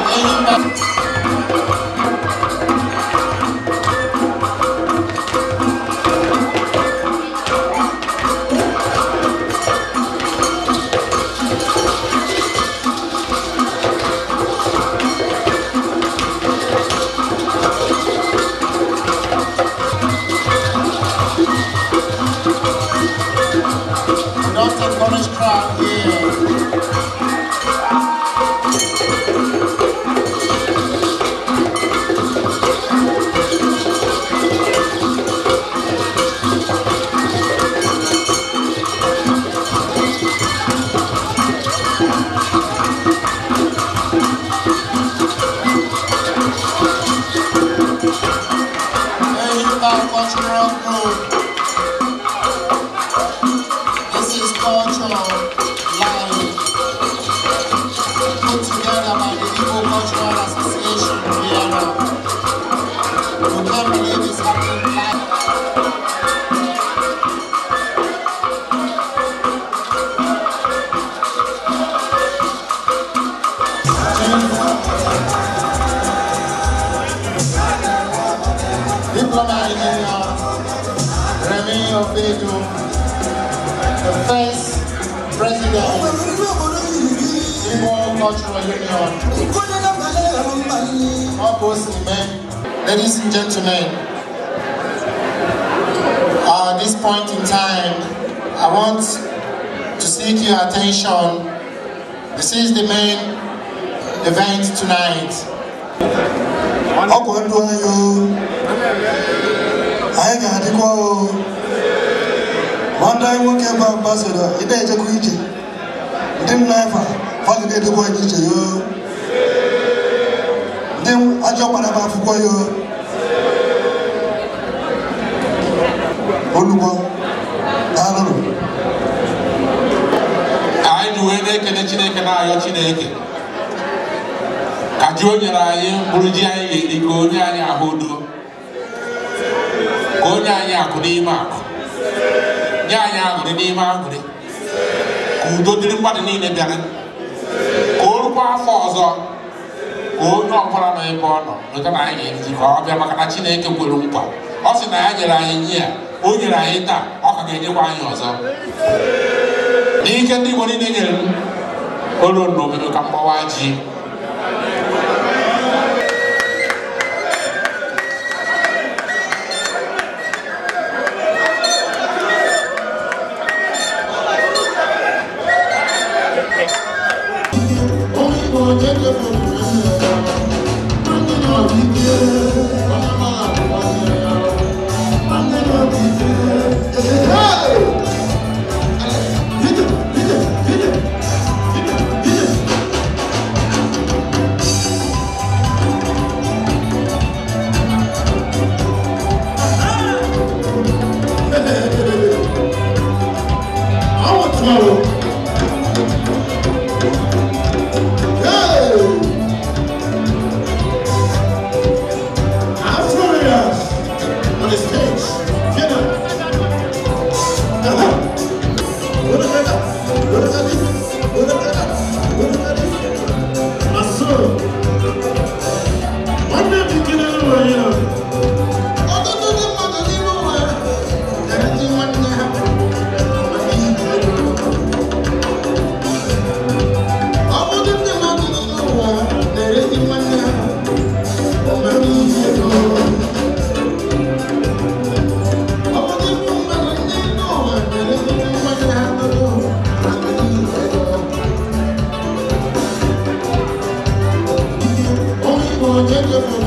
Not h a Polish crowd here. of Montreal Road. This is uh, cultural. Association, Vienna. You can't believe it's happening first president Cultural Union. ladies and gentlemen, uh, at this point in time, I want to seek your attention. This is the main event tonight. anyị nwoke ebe a mgba soro ị na-ejekwa ije ndị nna efa fadụ na-edekwa anyị iche yo ndị ajọ kpara m akwụkwọ yo olugbo daalụnụ anyị ji wee na-ekele chineke na-ayọ chineke ka ji o nyere anyị mkpụrụ ji anyị ga-eri ka onye anyị ahụ udo ka onye anyị akụ n'ime akụ nye anyị aṅụrị n'ime aṅụrị ka udo dịrị mmadụ niile bịara ka o rukwa afọ ọzọ ka onye ọbụla nọ ebe ọ nọ nweta na anyị ga ka ọ bịa maka na Chineke kwere nkwa ọ sị na ya nyere anyị nye ya o nyere anyị taa ọ ka ga-enyekwa anyị ọzọ n'ike ndị Igbo niile nyere m olu n'obodo ka mgbawa ji Thank you Thank